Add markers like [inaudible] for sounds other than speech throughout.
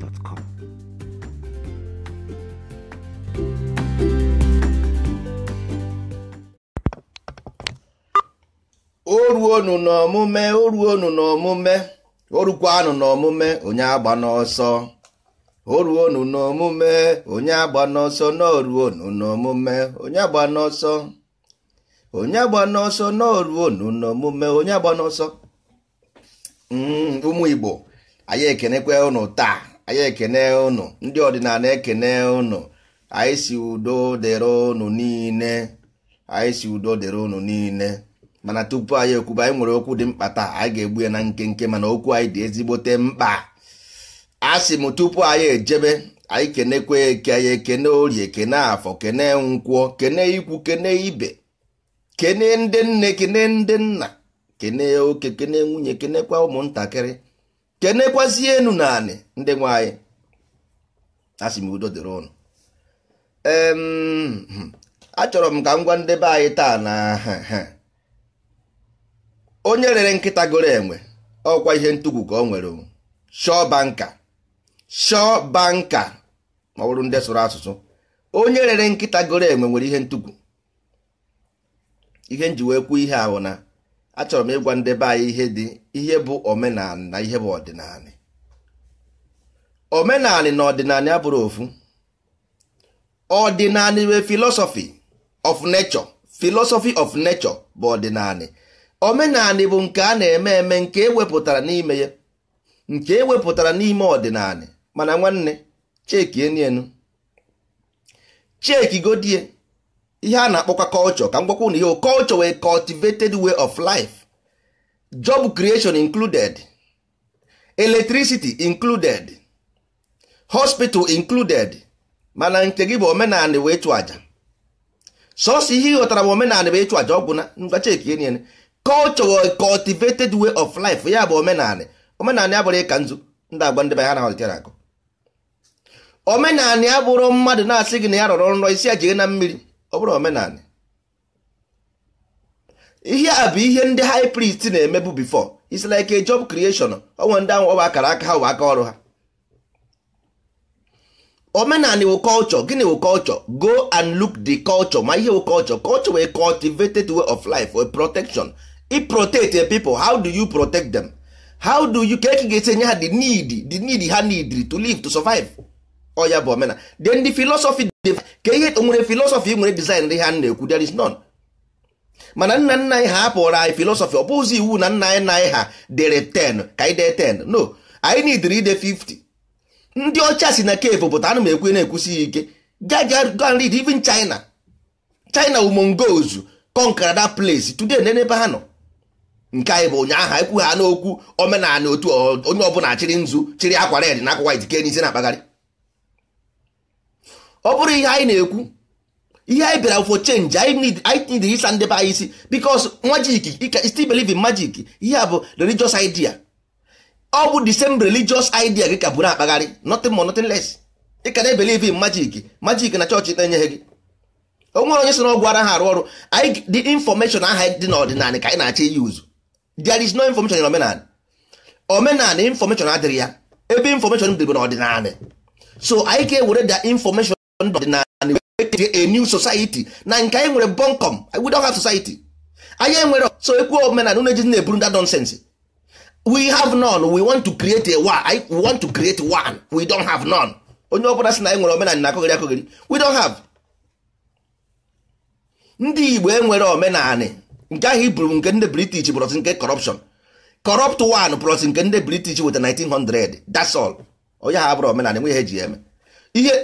o ruonu n'ọmụme o ruonu n'ọmụme o rukwanụ n'ọmụme onye agba n'ọsọ o ruonu n'ọmụme onye agba n'ọsọ na oruonu n'ọmụme onye agba n'ọsọ onye agba n'ọsọ na oruonu n'ọmụme onye agba n'ọsọ hmm, ụmụ Igbo anyị ekenekwa ụnụ taa anyị ekene ụnụ ndị ọdịnala ekene ụnụ anyị si udo dịrị ụnụ niile anyị si udo dịrị ụnụ niile mana tupu anyị ekwuba anyị nwere okwu dị mkpa taa anyị ga-egbu ya na nkenke mana okwu anyị dị ezigbote mkpa a sị m tupu anyị ejebe anyị kenekwa eke anyị ekene orie kene afọ kene nkwọ kene ikwu kene ibe kene ndị nne kene ndị nna kene oke kene nwunye kenekwa ụmụntakịrị kenekwazie enu na anị ndị nwanyị asị m udo dịrị ụnụ hmm. achọrọ m ka m gwa ndebe anyị taa na onye rere nkịta goro enwe ọkwa ihe ntụgwu ka ọ nwere shọ banka shọ banka ma ọ bụrụ ndị sụrụ asụsụ onye rere nkịta goro enwe nwere ihe ntụgwu ihe njiwe kwuo ihe ahụ na achọrọ m ịgwa ndebe anyị ihe dị ihe bụ omenala na ihe bụ ọdịnala omenala na ọdịnala abụrụ ofu ọdịnala wee filosofi of n'echọ philosophy of n'echọ bụ ọdịnala omenala bụ nke a na-eme eme nke ewepụtara n'ime ya nke ewepụtara n'ime ọdịnala mana nwanne cheki enienu cheki godie ihe a na-akpọkwa culture ka m gwakwa na ihe culture wee cultivated way of life job creation included electricity included hospital included mana nke gị bụ omenala wee chụ aja sọsọ ihe ịghọtara bụ omenala wee chụ aja ọ bụ na e niile culture cultivated way of life ya bụ omenala omenala ya bụrụ ịka nzu ndị agba ndị be na-ahọtara akụ omenala ya bụrụ mmadụ na-asị gị na ya rọrọ nrọ isi ya jee na mmiri ọ bụrụ omenala ihe a bụ ihe ndị high priest na-emebu bifor it's like a job creation onwe ndị ahụ ọba akara aka ha aka ọrụ ha omenala wụ culture gịnị wụ culture go and look the culture ma ihe wụ culture culture wee cultivated way of life or protection i protect the people how do you protect them how do you ka e ga-esi enye ha the need the need ha need to live to survive oya ka ihe nwere filosọfị nwere dizaịn ndị ha na-ekwu there is none mana nna nna anyị ha apụrụ e anyị filosofi ọ bụzi iwu na nna anyị na anyị ha dere 10 ka anyị dee 10 no anyị nidiri ide 50 ndị ọcha si na kevu pụta ana m ekwu na-ekwusighị ike gaga read even china china wu mongols conquer that place today na ebe ha nọ nke anyị bụ ụnyaahụ ekwu ha n'okwu omenala otu onye ọbụla chịrị nzu chịrị akwa red na akwa white ke n'isi na-akpagharị ọ bụrụ ihe anyị na-ekwu ihe anyị bịara for chenji anyị need ịsa ndị be anyị isi bikos magic you can majik ihe a bụ religious idea ọ bụ the same religious idea gị ka bụrụ akpagharị nothing more nothing less ị ka na-ebelieve in magic magic na chọọchị na-enyeghị gị o nwere onye si n'ọgwụ ha arụ ọrụ the information aha dị n'ọdịnala ka anyị na-achọ iyi uzu there is no information in omenala omenala information adịrị ya ebe information dịbụ n'ọdịnala so anyị ka ewere da information ndụ ọdịnala a new society na nke anyị nwere bonkom we don't have society anyị enwere so ekwu omenala unu ejizi na-eburu that nonsense we have none we want to create a one we want to create one we don't have none onye ọ bụla sị na anyị e nwere omenala na-akọghịrị akọghịrị we don't have ndị igbo enwere omenala nke ahụ iburu nke ndị british brọsi nke corruption corrupt one brọsi nke ndị british weta 1900 that's all onye ha bụrụ omenala enweghị ihe eji eme ihe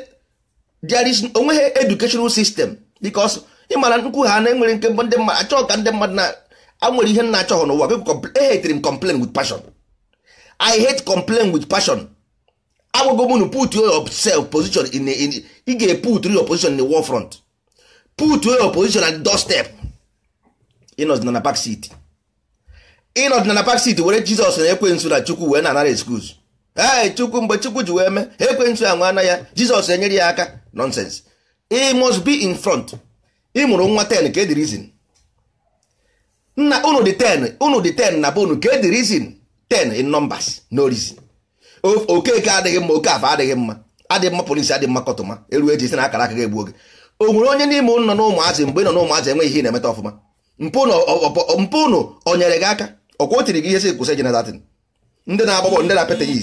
there is onweghị educational system because ịmara nkwu ha na enwere nke mbụ ndị mmadụ achọghị ka ndị mmadụ na anwere ihe nna achọghị n'ụwa people hate m complain with passion i hate complain with passion agwago m nu put yourself position in ị ga-eput your position in the war front put your position at the doorstep ịnọdịna na park city ịnọdịna na park city were jizọs na ekwensu na chukwu wee na anara excuse ee chukwu mgbe chukwu ji wee mee ekwensu anwa na ya jizọs enyere ya aka nonsense he must be in front ị mụrụ nwa ten ka edi reason nna unu dị ten unu dị ten na be unu ka edi reason 10 in numbers no reason okeke adịghị mma oke afa adịghị mma adịghị mma polisi adịghị mma kọtụma eru eji si na akara aka ga-egbu oge o nwere onye n'ime nọ na ụmụazị mgbe ị nọ na ụmụazị enweghị ihe na-emeta ọfụma mpụ unu o nyere gị aka ọkwa otiri tiri gị ihe sị kwụsị jenatin ndị na-agba ndị na-apịta ya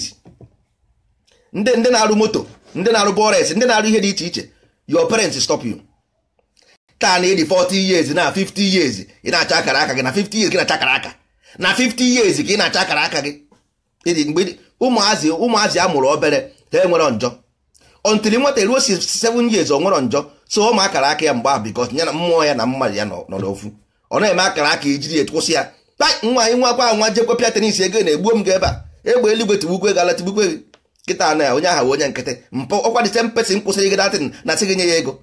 ndị ndị na-arụ moto ndị na-arụ bọres ndị na-arụ ihe dị iche iche your parents stop you taa na ịdị 40 years na 50 years ị na-acha akara aka gị na 50 years gị na-acha akara aka na 50 years ka ị na-acha akara aka gị mgbe ụmụazị ụmụazị a mụrụ obere ha enwere njọ ọntiri nwata eruo 7 years ọ nwere njọ so ụmụ akara aka ya mgbe ahụ because ya mmụọ ya na mmadụ ya nọ n'ofu ọ eme akara aka ijiri e ya ya nwa anyị akwa nwa jekwepịa tenis ego na-egbuo m gị ebe a egbe eluigwe tigbukwe gala gị nkịta na onye ahụ onye nkịtị mpụ ọkwa the same person kwụsịrị gị datin na sị gị nye ya ego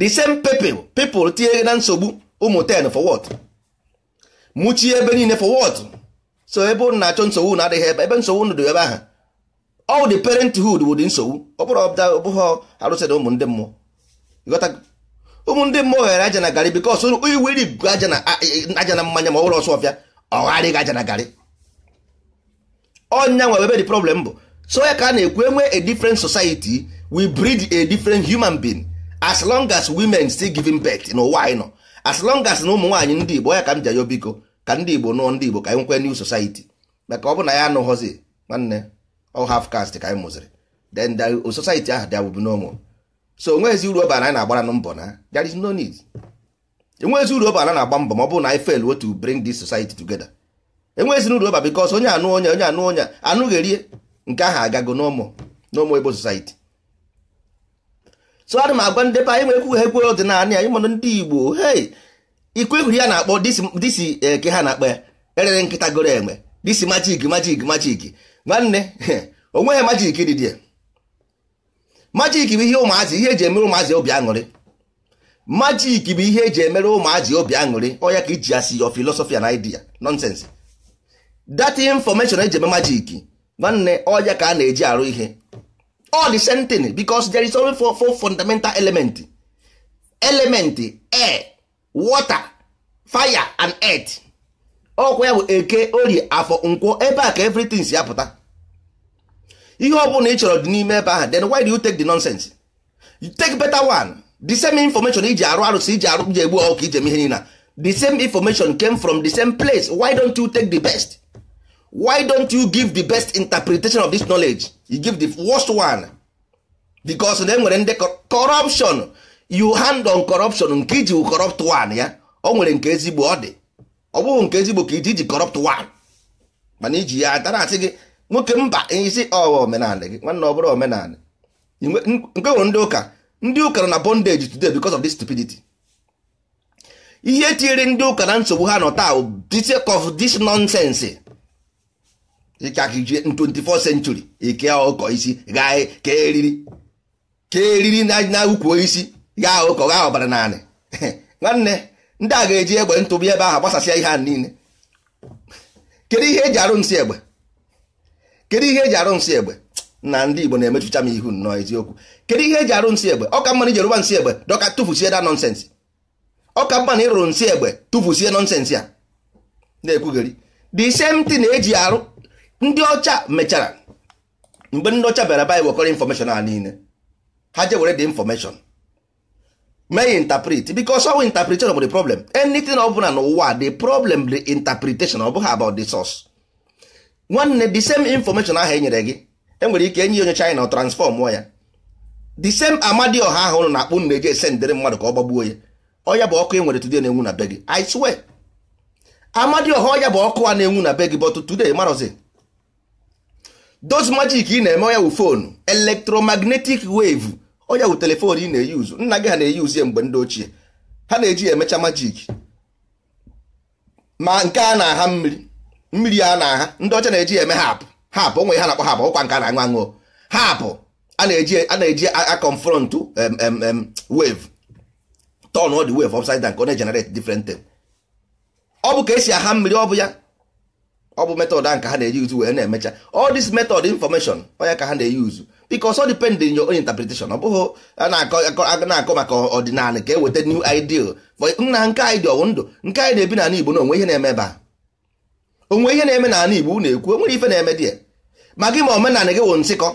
the same people people tinyere gị na nsogbu ụmụ 10 for wọt. mụchie ebe niile for wọt so ebe ụnụ na-achọ nsogbu na adịghị ebe ebe nsogbu ụnụ dị ebe ahụ all the parenthood wụ dị nsogbu ọ bụrụ ọbụghọ arụsịrị ụmụ ndị mmụọ ụmụ ndị mmụọ ghere aja na garị bikos iweri aja na mmanya ma ọ bụrụ ọsọ ọbịa ọ gharịghị aja na garị ọnya nwe ebe the problem bụ so ya ka a na-ekwu enwe a different society we breed a different human being as long as women still giving birth n'ụwa anyị nọ as long as na ụmụ nwaanyị ndị Igbo ya ka m ji ayọ biko ka ndị Igbo nụọ ndị Igbo ka anyị nwekwe new society maka ọ bụ na ya anụghọzi nwanne ọ half caste ka anyị mụziri then the society ahụ dị abụbụ n'ụmụ so onweghịzi uru ọbara anyị na-agbara mbọ na there is no need enweghịzi uru ọbara na-agba mbọ ma ọ bụ na anyị fail to bring this society together enweghịzina uru ọba bikos onye anụ onye onye anụ onye anụghị erie nke ahụ agago n'ụmụ n'ụmụ ebo society so m agwa ndị be anyị nwekwu ha ekwere ọdịnala ya ịmanụ ndị igbo hei ikwu ya na-akpọ disi eke eh, ha na-akpọ ya erere nkịta goro enwe disi majik majik majik nwanne [laughs] onweghị majik dịdị majik bụ ihe ụmụazị ihe eji emere ụmụazị obi aṅụrị majik bụ ihe eji emere ụmụazị obi aṅụrị ọ ya ka iji ya si yo filosofia na idea dat information eji eme majik nwanne ọya ka a na-eji arụ ihe all the same thing because there is only four, four fundamental element element air water fire and earth ọkwa ya bụ eke orie afọ nkwọ ebe a ka everything si apụta ihe ọ bụla ị chọrọ dị n'ime ebe ahụ then why do you take the nonsense you take better one the same information iji arụ arụsị iji arụ ji egbu ọkụ ijem ihe niile the same information came from the same place why don't you take the best why don't you give the best interpretation of this knowledge you give the worst one because na enwere ndị corruption you hand on corruption nke iji corrupt one ya o nwere nke ezigbo ọ dị ọ bụghị nke ezigbo ka iji iji corrupt one mana iji ya atara asị gị nwoke mba isi ọwa omenala gị nwanne ọ bụrụ omenala nke nwere ndị ụka ndị ụka na bondage today because of this stupidity ihe tinyere ndị ụka na nsogbu ha nọ taa this of this nonsense ịkakiji 24 century ike ọkọ isi gaa ka eriri ka eriri na ukwu isi gaa ụkọ gaa ọbara naanị [laughs] nwanne ndị a ga-eji egbe ntụbi ebe ahụ gbasasịa ihe a niile kedu ihe eji arụ nsị egbe kedu ihe eji arụ nsị egbe na ndị Igbo na-emechucha m ihu nnọọ eziokwu kedu ihe eji arụ nsị egbe ọka mmanụ jeruba nsị egbe dọka tụfusie da nọnsensị ọka mmanụ ịrụrụ nsị egbe tụfusie nọnsensị a na-ekwugheri the same thing na-eji arụ ndị ọcha mechara mgbe ndị ọcha bịara bịa wekọrọ infọmeshọn a niile ha je were dị infọmeshọn mee interpret because ọwụ interpretation bụ the problem anything ọ bụla n'ụwa the problem the interpretation ọ bụghị about the source nwanne the same information ahụ enyere gị enwere ike enye onye China transform ya the same Amadioha ahụ ụnụ na-akpụ nne eje esendịrị mmadụ ka ọ gbagbuo ya ọya bụ ọkụ e nwere today na-enwu na be gị I swear Amadioha ọya bụ ọkụ a na-enwu na be gị but today marọzi those magic ị na-eme onye wụ fonu electromagnetic wave onye wụ telefon ị na-eyuzu nna gị ha na-eyuzu ya mgbe ndị ochie ha na-eji emecha majik ma nke a na-aha mmiri mmiri a na-aha ndị ọcha na-eji eme hapụ hapụ onwe ha na-akpọ hapụ ọkwa nke a na-aṅụ aṅụ hapụ a na-eji akọnfrọntụ wave turn all the wave upside down ka ọ na-generate ọ bụ ka esi aha mmiri ọ bụ ya ọ bụ metod a nke ha na-eyuzu wee na-emecha all this method information onye ka ha na-eyuzu because all depend in your own interpretation ọ bụghị a na-akọ maka ọdịnala ka e weta new ideal nna nke anyị dị ọwụ ndụ nke anyị na-ebi n'ala Igbo na onwe ihe na-eme ebe a onwe ihe na-eme n'ala Igbo na ekwu onwere ife na-eme di ya ma gị ma omenala gị wụ nsịkọ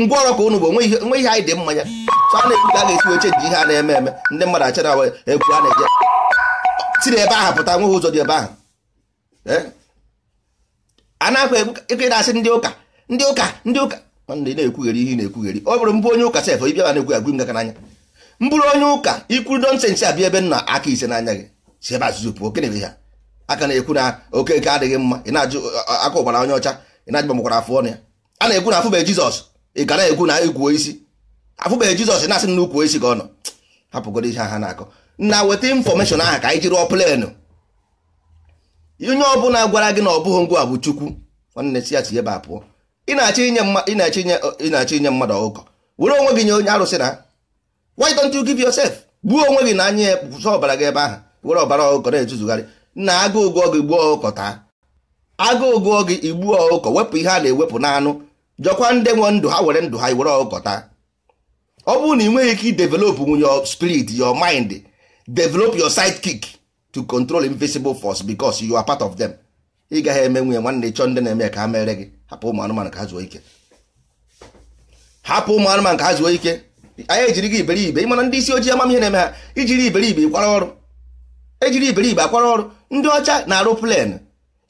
ngwaọrụ ka ụnụ bụ onwe ihe anyị dị mmanya so a na-ekwu ka a ga-esi weche ji ihe a na-eme eme ndị mmadụ achara egwu a na-eje tiri ebe ahụ pụta nweghị ụzọ dị ebe ahụ eh? a na-akwa na-asị ndị ụka ndị ụka ndị ụka ị na-ekwugheri ihe na-ekwugheri ọ bụrụ mbụ onye ụka sef ịbịa na-ekwu agwụ ngaka n'anya mbụrụ onye ụka ikwu nọnsensị abịa ebe nna aka ise n'anya gị si ebe azụzụ pụọ okenere ha aka na-ekwu na oke nke adịghị mma ị na-ajụ aka ụgbara onye ọcha ị na-ajụ makwara afọ ọnụ ya a na-ekwu na afụbe jizọs ị ga na-ekwu na ekwuo isi afụbeghị jizọs na-asị na ukwu isi ka ọ hapụgodo ihe ha na-akọ na weta infọmeshọn ahụ ka anyị jiri ọ plenụ onye ọbụla gwara gị na ọ bụghị ngwa bụ chukwu nwanne si ya si ebe a pụọ ị na-achọ inye mmadụ ọgụkọ were onwe gị nye onye arụsị na why don't you give yourself gbuo onwe gị na anya ya pụsa ọbara gị ebe ahụ were ọbara ọgụkọ na-etuzugharị na agụụ gụọ gị gbuo ọgụkọ taa agụụ gụọ gị igbuo ọgụkọ wepụ ihe a na-ewepụ n'anụ jọkwa ndị nwe ndụ ha were ndụ ha were ọgụkọ taa ọ bụrụ na ị nweghị ike idevelopụ nwunye spirit your mind develop your sidekick to control invisible force because you are part of them ị gaghị eme nwunye nwanne chọọ ndị na-eme ka ha mere gị hapụ ụmụ anụmanụ ka ha zuo ike hapụ ụmụ anụmanụ ka ha zuo ike anyị ejiri gị iberibe ịmana ndị isi ojii ihe na-eme ha ijiri iberibe kwara ọrụ ejiri iberibe akwara ọrụ ndị ọcha na-arụ plen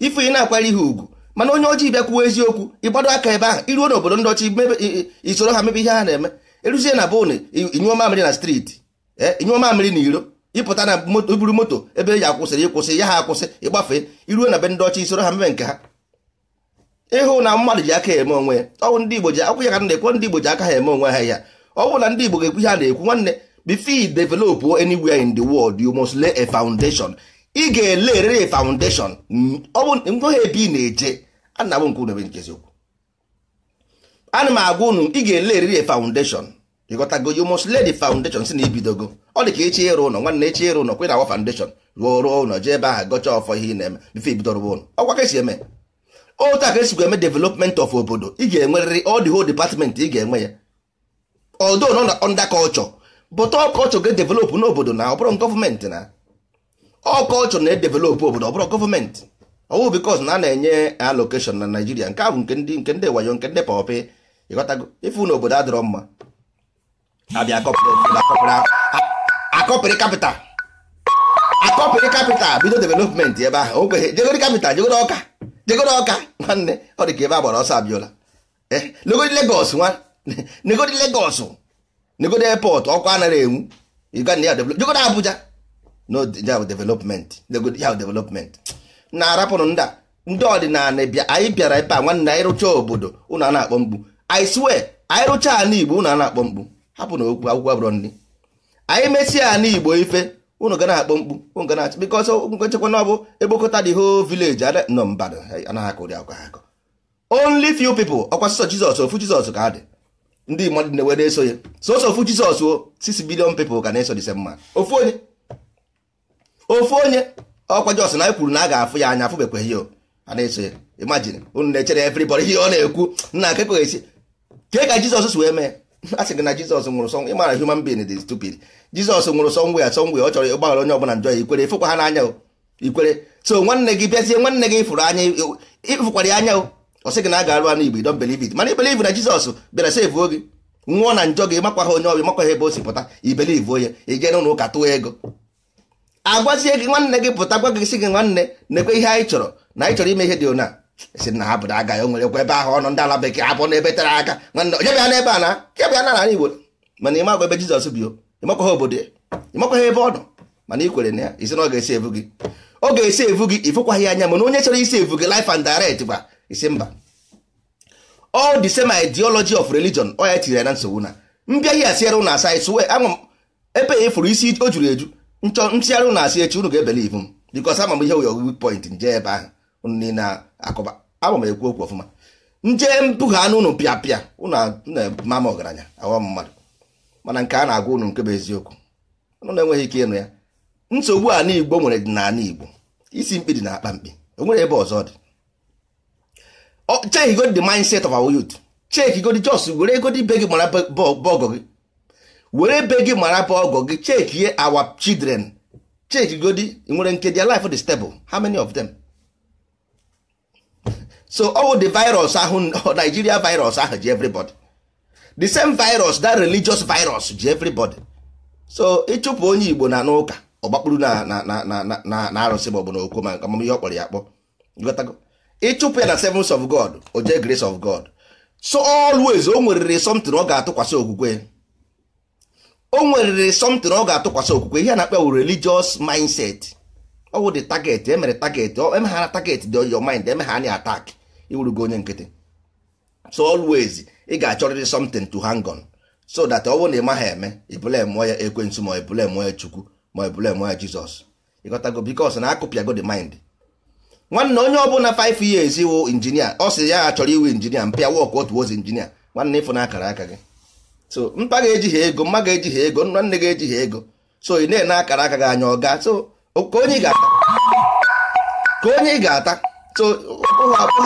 ife ị na-akwara ihe ugwu mana onye ojii bịa kwuo eziokwu ịgbado aka ebe ahụ iruo n'obodo ndị ọcha isoro ha mebe ihe ha na-eme eruzie na bone inyụọ mamịrị na steeti inyụọ eh, mamịrị na iro ịpụta na e buru moto ebe ya akwụsịrị ịkwụsị ya ha akwụsị ịgbafe iruo na be ndị ọchị soro ha mebe nke ha ịhụ na mmadụ ji aka eme onwe ya ọwụ ndị Igbo ji akwụ ya ka na-ekwe ndị Igbo ji aka ha eme onwe ha ya ọ bụrụ na ndị Igbo ga-ekwu ihe ha na-ekwu nwanne before develop anywhere in the world you must lay a foundation ị ga-ele a foundation ọ bụ ngwa ha ebe ị na-eje ana m agwa unu ị ga-ele a foundation ịghọtago you must lay the foundation si na ibidogo ọ dị ka echi ịrụ ụlọ nwanne echi ịrụ ụlọ kwe na awa foundation ruo rụọ ụlọ jee ebe ahụ gọcha ọfọ ihe ị na-eme bifo ibidoro ụlọ ọkwa ka esi eme otu a esikwa eme development of obodo ị ga-enwerịrị all the whole department ị ga-enwe ya although na under culture but all culture ga na n'obodo na ọbụrọ oh, bụrụ na ọkọlchọ na-edevelop obodo ọ bụrụ gọọmenti ọwụ bikos na a na-enye alokeshon na Naijiria nke ahụ nke ndị nke ndị wayo nke ndị pọpị ịghọtago ife na obodo adịrọ mma abịa akọpịrị kapịtal akọpịrị kapịtal bido developmenti ebe ahụ okwe jegoro kapịtal jegoro ọka jegoro ọka nwanne ọ dị ka ebe a gbara ọsọ abịala negodi legos nwa negodi legos negodi airport ọkụ anaghị enwu uganda ya jegoro abuja no development ya development na-arapụrụ ndị ndị ọdịnala anyị bịara ebe a nwanne anyị rụchaa obodo ụnụ a na-akpọ mkpu I swear anyị rụchaa ala igbo ụnụ a na-akpọ mkpu hapụ na okwu akwụkwọ abụrọ nri anyị mesịa ala igbo ife ụnụ gana na-akpọ mkpu unu ga na-achị bikọ ọsọ ngwe nchekwa na ọ bụ ekpokọta dị ho vileji nọ mbadụ anaghị akụ ụdị akụkọ akọ only few people ọkwa sọsọ jizọs ofu jizọs ka dị ndị mmadụ dị ewe na-eso ya sọsọ ofu jizọs o sisi bilion people ka na-eso dị mma ofu onye ofu onye ọkwa jọs na anyị kwuru na a ga-afụ ya anya afụbekwa ya a na-eso ya imagine unu na-echere everybody ihe ọ na-ekwu nna akụkọ esi kee ka jizọs wee mee [laughs] a sị gị na jizọs nwụrụ sọ ị mara human being dị stupid jizọs nwụrụ sọ nwe ya sọ nwe ya ọ chọrọ ịgbaghara onye ọbụla njọ ya ikwere ịfụkwa ha n'anya ikwere so nwanne gị bịazie nwanne gị fụrụ anya ịfụkwara ya anya ọ sị gị na a ga-arụ anụ igbo don believe it mana ibelive na jizọs bịara sevuo gị nwụọ na njọ gị makwa ha onye ọbịa makwa ha ebe o si pụta ibelive onye ị jee n'ụlọ ụka tụọ ego agwazie gị nwanne gị pụta gwa gị sị gị nwanne na-ekwe ihe anyị chọrọ na anyị chọrọ ime ihe dị ona si na ha bụrụ aga ya onwere nwerekwa ebe ahụ ọnụ ndị ala bekee abụ na ebe tere aka nwanne onye bịa n'ebe a na kebịa na nara igbo mana ị makwa ebe jizọs bi ha obodo ya ha ebe ọ nọ mana ị kwere na ya isi na ọ ga-esi evu gị ọ ga-esi evu gị ifụkwaghị anya mana onye chọrọ isi evu gị life and direct gwa isi mba all the same ideology of religion ọ ya tinyere na nsogbu na mbịaghị asịara ụnụ asa swe anwụ ebe ya e fụrụ isi o juru eju nchọ ntịgharị ụnụ asị echi unu ga-ebelivu m because ama m ihe wụ point nje ebe ahụ akụba abụ m ekwu okwu ọfụma nje mpụga anụ ụnụ pịa pịa ụnụ na-ema m ọgaranya aghọ mmadụ mana nke a na-agwa ụnụ nke bụ eziokwu ụnụ na-enweghị ike ịnụ ya nsogbu a n'igbo nwere dị igbo isi mkpi dị na akpa mkpi o nwere ebe ọzọ dị check godi the mindset of our youth check godi just were egodi ibe gị mara bọgọ gị were ebe gị mara bọgọ gị check ihe our children check igodi nwere nke their life the stable how many of them so all the virus ahụ [laughs] Nigeria virus ahụ ji everybody the same virus that religious virus ji everybody so ịchụpụ onye Igbo na n'ụka ọgbakpụrụ na na na arụsị ma ọ bụ na okwu ma amamihe ọ kpọrọ ya akpọ ịchụpụ ya na servants of God o jee grace of God so always o nweriri something ọ ga-atụkwasị okwukwe o nweriri something ọ ga-atụkwasị okwukwe ihe a na-akpa wụ religious mindset ọ wụ the target emere target emeghara target dị your mind emegha anya attack iwurugo onye nkịtị so always ị ga-achọrịrị something to hang on so that ọ bụrụ na ị maghị eme ibule mụọ ya ekwensu ma ibule mụọ ya chukwu ma ibule mụọ ya jizọs ịghọtago bikos na akụpịago the mind nwanne onye ọbụla 5 years iwu injinia ọ sị ya chọrọ iwu injinia mpịa wọk otu ozi injinia nwanne ịfụ na akara aka gị so mpa ga-eji ha ego mma ga-eji ha ego nwanne ga-eji ha ego so ị na-ene akara aka gị anya ọ ọga so ka onye ị ga-ata ka onye ị ga-ata so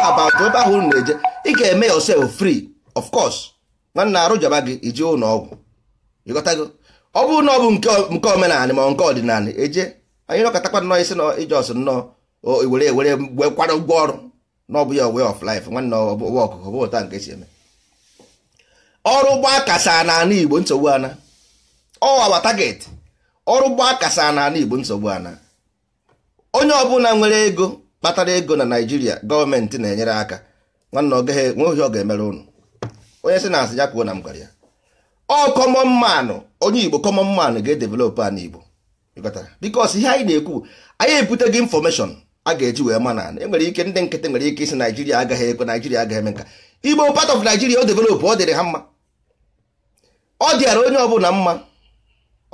abụghị ebe ahụ unu na-eje ị ga-eme yourself free of course nwanne arụ jọba gị iji ụlọ ọgwụ ịghọtago ọ bụrụ na ọ bụ nke omenala ma nke ọdịnala eje anyị nọkọtakwa nnọọ isi na ijọs nnọọ were were gwekwara ụgwọ ọrụ na ọ ya way of life nwanne ọwa ọkụkọ bụ ụta nke si eme ọrụ gbaa kasa n'ala igbo nsogbu ana ọ awa target ọrụ gbaa kasa n'ala igbo nsogbu ana onye ọbụla nwere ego kpatara ego na naijiria gọọmenti na-enyere aka nwanne nweohi ọ ga-emere ụnụ onye si na asị ya kwuo na m gwara ya ọ kọmọn manụ onye igbo kọmọn manụ ga-edevelopụ a n'igbo bikos ihe anyị na-ekwu anyị gị infọmeshọn a ga-eji wee ma na enwere ike ndị nkịtị nwere ike isi naijiria agaghị ekwe naijiria agaghị eme nka igbo part of naijiria o developụ ọ dịrị ha mma ọ dịara onye ọbụla mma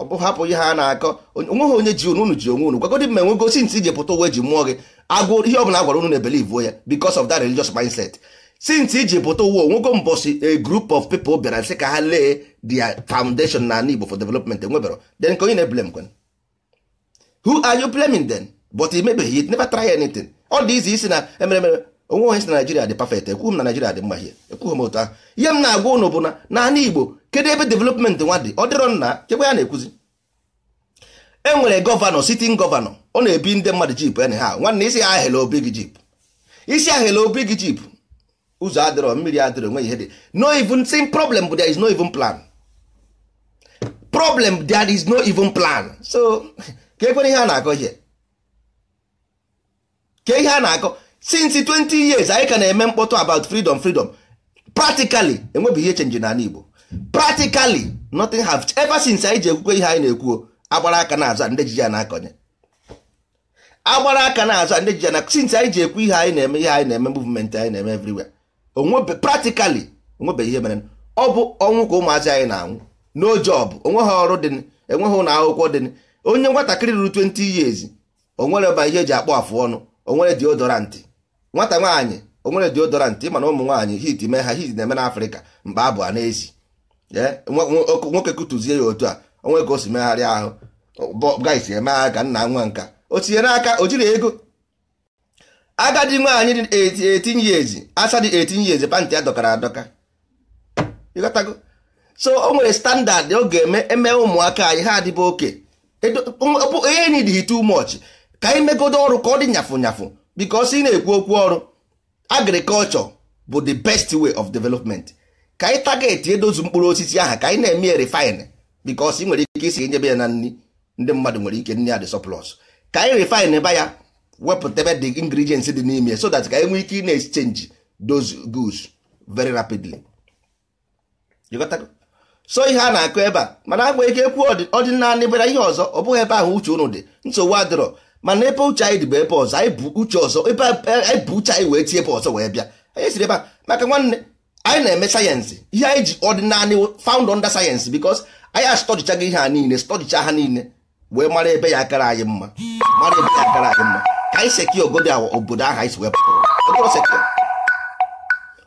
ọ bụ hapụ ihe ha na-akọ onweghị onye ji unu ji onwe unu gwagodi mma enwego sinti ije pụta uwe ji mụọ gị agụ ihe ọ bụla agwara unu na-ebelivuo ya because of that religious mindset since iji pụta ụwa onwego mbọsi a group of people bịara sị ka ha lee their foundation na Igbo for development enwebero then ka onye na-eblem kwen who are you blaming then but imebeghị it never try anything ọ dị izi isi na emere emere onwe onye si na Naijiria dị perfect ekwughị m na Naijiria dị mma ihe ekwughị m otu ahụ ihe m na-agwa ụnụ bụ na naanị Igbo kedu ebe development nwa dị ọ dịrọ nna chekwa ya na-ekwuzi enwere gọvanọ sitin gọvanọ ọ na-ebi ndị mmadụ jip en ha nwanne isi ya obi gị jip isi ahela obi gị jip ụzọ adịrọ mmiri adịrọ nwe ihe dị no even same problem but there is no even plan problem there is no even plan so [laughs] ka ekwere ihe a na-akọ ihe ka ihe a na-akọ since 20 years anyị ka na-eme mkpọtụ about freedom freedom practically enwebeghị ihe chenji n'ala Igbo practically nothing have ever since anyị ji ekwukwe ihe anyị na-ekwuo agbara aka na-aza ndị ji ya na-akọnye agbara aka na-aza ndị ji ya na since anyị ji ekwu ihe anyị na-eme ihe anyị na-eme movement anyị na-eme everywhere onwebe practically onwebe ihe mere ọ bụ ọnwụ ka ụmụazị anyị na-anwụ no onwe onweghị ọrụ dị enweghị ụlọ akwụkwọ dị onye nwatakịrị ruru 20 years onwere ba ihe eji akpọ afụ ọnụ onwere deodorant nwata nwaanyị onwere deodorant mana ụmụ nwaanyị hit mee ha hit na-eme n'afrịka mkpa abụ a n'ezi nwoke kụtụzie ya otu a onwe ka o si megharịa ahụ guys emegha ka nna nwa nka o tinyere aka o jiri ego agadi nwaanyị dị 18 years asa dị 18 years pantị ya dọkara adọka so o nwere standard ọ ga-eme eme ụmụaka anyị ha adịbụ oke onye enyi dị too much ka anyị megodo ọrụ ka ọ dị nyafụ nyafụ because ị na-ekwu okwu ọrụ agriculture bụ the best way of development ka anyị target edozu mkpụrụ osisi ahụ ka anyị na-eme refine bikos ị nwere ike isi nyebe ya na nri ndị mmadụ nwere ike nri ya dị sọplọs ka anyị refine ba ya wepụtabe the ingredients dị n'ime so that ka anyị nwee ike ina na-exchange those goods very rapidly so ihe a na-akụ ebe a mana agwa ike ekwu ọdịnanị bịara ihe ọzọ ọ bụghị ebe ahụ uche ụnụ dị nsogbu adịrọ mana ebe uche anyị dị bụ ebe ọzọ anyị uche ọzọ ebe anyị e, e, bụ uche anyị wee tie ebe ọzọ wee bịa anyị siri ebe a maka nwanne anyị na-eme sayensị ihe anyị ji ọdịnanị found under sayensị because anyị astọdịchaghị ihe a niile stọdịcha ha niile wee mara ebe ya akara anyị mma mara ebe ya kara anyị mma ka anyị seki obodo awa obodo ahụ anyị si ụwa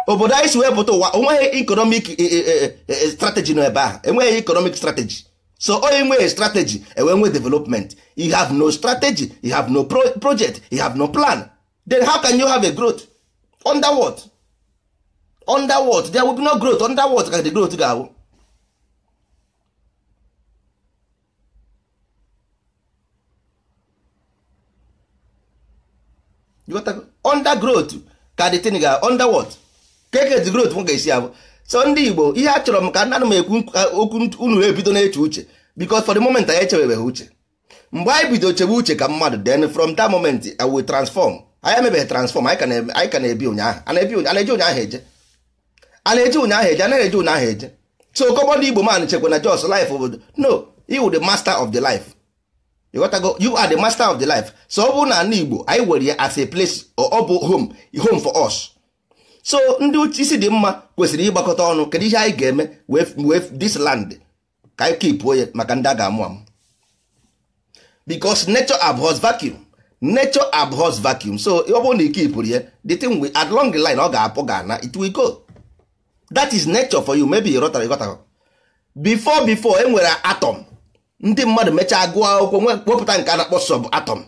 obodo anyị si wepụta ụwa enweghị ikonomik e, e, e, strategy nọ ebe ahụ enweghị ikonomik strategy so onye nweghị strategy enwee nwe development you have no strategy you have no project you have no plan then how can you have a growth under what undergrowth ka the thing ga underworld keket growth m ga-esi abụ so ndị Igbo ihe a chọrọ m ka ana m ekwu okwu unu ebido na-eche uche because for the moment anyị echebebeghị uche mgbe anyị bido chebe uche ka mmadụ then from that moment I will transform anyị emebeghị transform anyị ka na-ebi ụnyaahụ a na-eje ụnyaahụ eje a na-eje ụnyaahụ eje a na-eje ụnyaahụ eje so kọbọ ndị Igbo man chekwa na jos life obodo no he would the master of the life ịghọtago you are the master of the life so ọ bụrụ na ala Igbo anyị were ya as a place ọ bụ home home for us so ndị uche isi dị mma kwesịrị ịgbakọta ọnụ kedu ihe anyị ga-eme this land ka anyị kipụo ya maka ndị a ga-amụ amụ because nature abhors vacuum nature abhors vacuum so ọ bụrụ na ike ipụrụ ya the thing we at long line ọ ga-apụ ga-ana it will go that is nature for you maybe ịghọtara ịghọtara before before e nwere atom ndị mmadụ mechaa gụọ akwụkwọ wepụta nke a na-akpọ sọb atọm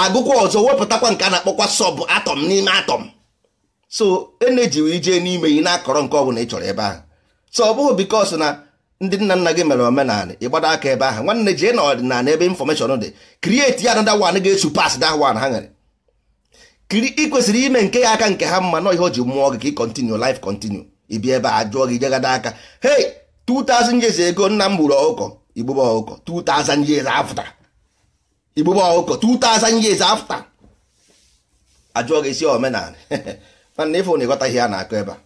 agụkwa ọzọ wepụtakwa nke a na-akpọkwa sọb atọm n'ime atọm so eneji wee jee n'ime ị na-akọrọ nke ọbụla ị chọrọ ebe ahụ so ọ bụghị bikos na ndị nna nna gị mere omenala ịgbado aka ebe ahụ nwanne jee na ọdịnala ebe infọmeshọn dị krieti ya anada wan ga-esu pas da wan ha nwere ị kwesịrị ime nke ya aka nke ha mma na ihe o ji mmụọ gị ka ị kọntinu lif kontinu ibi ebe a jụọ gị jegada aka hey 2000 years nna m gburu ọkụkọ igbube ọkụkọ 2000 years after igbube ọkụkọ 2000 years after ajụọ gị isi omenala [laughs] mana ịfụ na ịghọtaghị ha na-akọ ebe a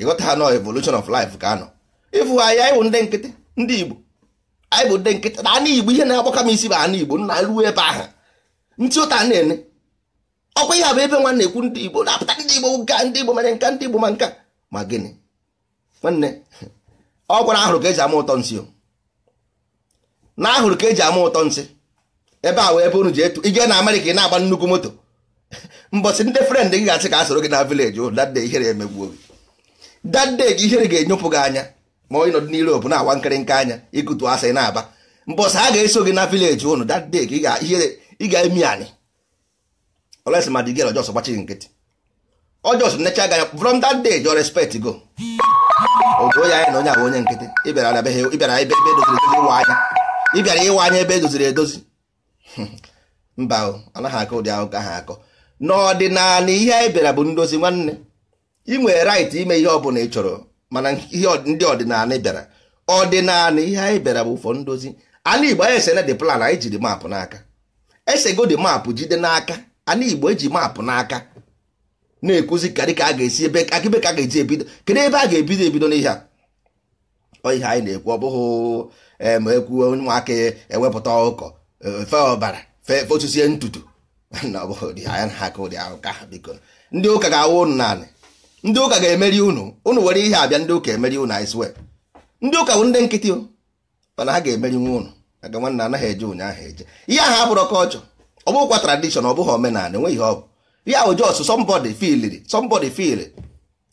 ịghọta ha nọ evolution of life ka anọ ịfụ ha ya ịbụ ndị nkịtị ndị igbo anyị bụ ndị nkịtị na ana igbo ihe na agbakọ m isi bụ ana igbo nna ruo ebe ahụ ntị ụta na-ene ọkwa ihe abụ ebe nwanne ekwu ndị igbo na-apụta ndị igbo nka ndị igbo mere nka ndị igbo ma nka ma gịnị nwanne [laughs] ọ gwara ahụrụ ka eji ama ụtọ nsị o na ahụrụ ka eji ama ụtọ nsị ebe a wee ebe unu ji etu ije na amerịka ị na-agba nnukwu moto [laughs] mbọsị ndị frend gị ga-asị ka a soro gị na vileji ụlọ dade ihere emegbuo gị ihe gị ihere ga-enyopụ gị anya ma onye nọdị n'iro obụ na-agwa nkịrịnka anya ikutu asị na-aba mbọsị a ga-eso gị na vileji ụnụ dade gị ị ga-emi anyị olesi ma ọjọs gbachi gị nkịtị ọjọs necha gị anya from that day jọ respect go otu onye anyị na onye abụ onye nkịtị ịbịara ebe e doziri ebe ịwa e anya ị bịara ịwa anya ebe edoziri edozi [laughs] mba anaghị akọ ụdị ahụ ka ha akọ n'ọdịnala ihe anyị bịara bụ ndozi nwanne ị rait ime ihe ọ bụla ị chọrọ mana ihe ndị ọdịnala bịara ọdịnala ihe anyị bịara bụ ụfọ ndozi ala igbo anyị esena dị plan anyị jiri maapụ n'aka ese dị maapụ jide n'aka ala igbo eji maapụ n'aka na-ekuzi ka a ga-esi ebe akịbe ka a ga-eji ebido kedu ebe a ga-ebido ebido n'ihe a ọ ihe anyị na-ekwu ọ bụghị ma ekwuo ụmụaka ewepụta e ọkụkọ e, fe ọbara fe otusie ntutu [laughs] ndị ụka ga-awụ ụnụ naanị ndị ụka ga-emeri ụnụ ụnụ were ihe abịa ndị ụka emeri ụnụ anyị ndị ụka bụ ndị nkịtị mana ha ga-emeri nwa unu aga nwanne anaghị eje ụnyaahụ eje ihe ahụ abụrụ kọlchọ ọ bụghịkwa tradishọn ọ bụghị omenala enweghị ihe ọ bụ ihe ahụ jos sọmbọdị filiri sọmbọdị filiri